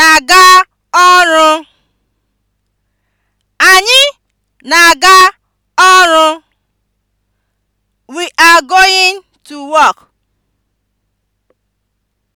na-aga ọrụ. Anyị na-aga ọrụ. We are going to work.